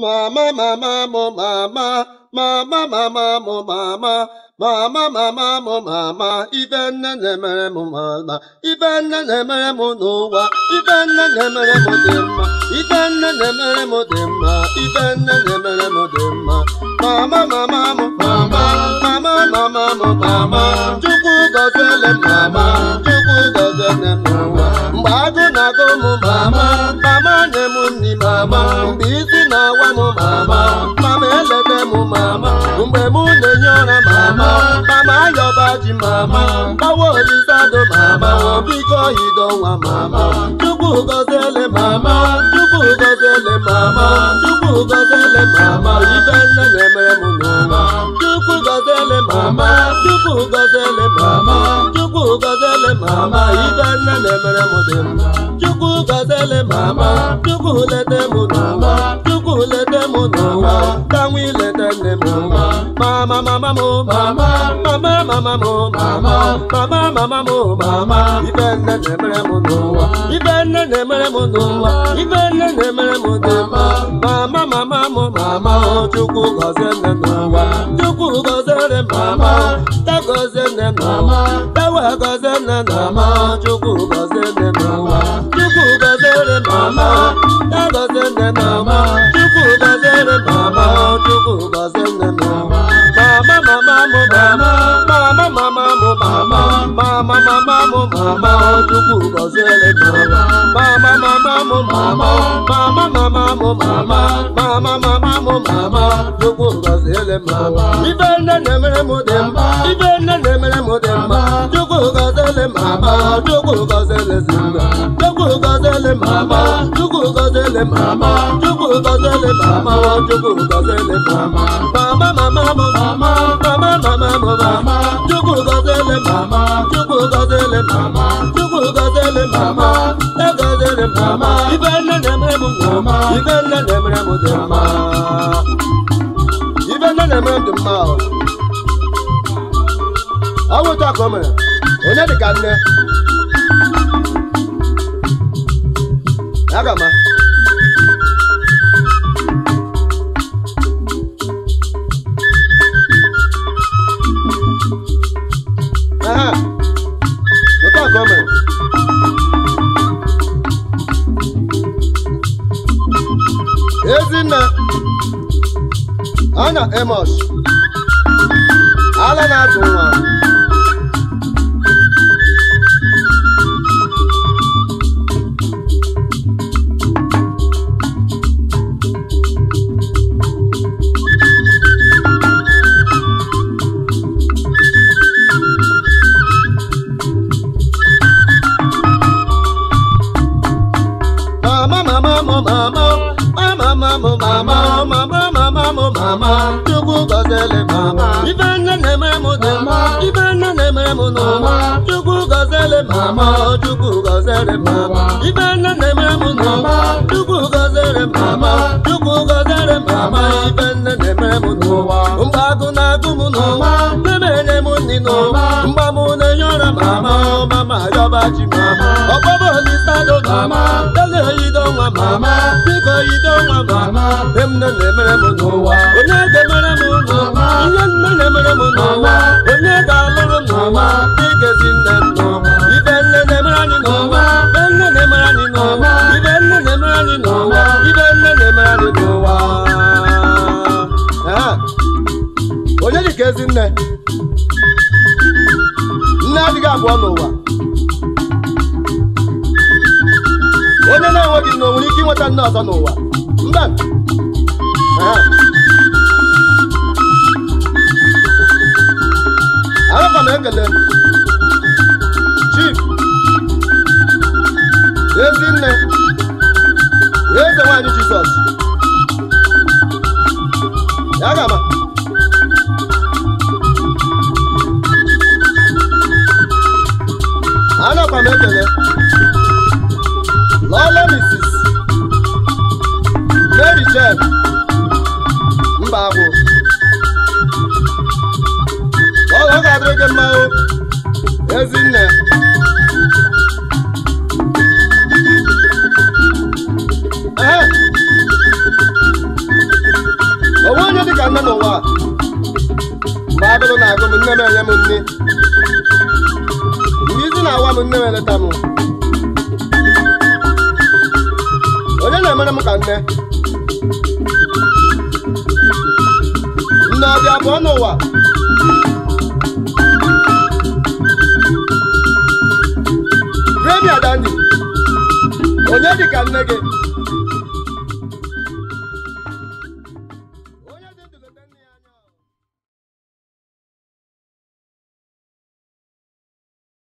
Ma ma ma ma mo ma ma ma ma ma ma mo ma ma ma ma ma mo ma ma. even na nemere mo ma ma. even na nemere mo no wa. even na nemere mo ma. even na nemere mo ma. even na nemere mo ma. Ma ma ma ma mo ma ma ma ma ma mo ma ma. juku ma ma. ọjị mama gbawa olisado mama biko idonwa mama chukwu gọziele mama chukwu gọziele mama chukwu gọziele mama ibe nne na-emere m n'ụwa chukwu gọziele mama chukwu gọziele mama chukwu gọziele mama ibe nne na-emere m dị mma chukwu gọziele mama chukwu lete m n'ụwa chukwu lete m n'ụwa ka nwa ilete nne m n'ụwa mama mama m mama mama mama mama mo mama mama mama mo mama ibe nne na-emere m n'ụwa ibe nne na-emere m n'ụwa ibe nne na-emere m n'ụwa mama mama mo mama chukwu gọzie nne n'ụwa chukwu gọziere mama ta gọzie nne n'ụwa ta wee gọzie nne n'ụwa chukwu gọzie nne mama mama mama chukwu gọziere mama mama mama mama mama mama mama mama mama mama mama ibe nne na-emere m dị mma ibe nne na-emere m dị mma chukwu gọziere mama chukwu gọziere mma chukwu gọziere mama chukwu gọziere mama chukwu gọziere mama mama mama mama mama mama mama mama chukwu mama chukwu mama e mama ibe nne na-emere m ibe nne na-emere m dị mma ibe nne na m dị mma ọ bụ ka o mere onye dị ka nne ya gama coming. Ezinna ana Amos. Ala na ekele mama ife nne na mama chukwu gọziere mama ife nne na mama chukwu mama ife nne na na-agụ m n'ụma na-emere mama mama yọba ji mama ọkpọbọ olisa mama nwa mama biko nwa mama na-emere m n'ụwa onye ga-emere m n'ụwa nne na-emere m n'ụwa onye ga-alụrụ m n'ụwa igezi nne m ibe nne na-emere anyị n'ụwa ibe nne na-emere anyị n'ụwa ibe nne na-emere anyị n'ụwa ibe nne na-emere anyị n'ụwa dị ka ezi nne nne adịghị abụọ n'ụwa onye na-enweghị nna o nwere ike inweta nna ọzọ n'ụwa mba anakwa m ekele chief ezi nne eze nwanyị jizọs ya ga-ama m ekele chef mba bụ ọ ga-adịrị gị mma ezinne ee onwe onye dị ka nne n'ụwa mgbe agụrụ na-agụ m nne m enye m nne mgbe isi na-awa m nne m eleta m onye na-emere m ka nne Ọlámiládé Abọ́nàwà. Rẹ́mi Àdáni, Onyedika Nnege.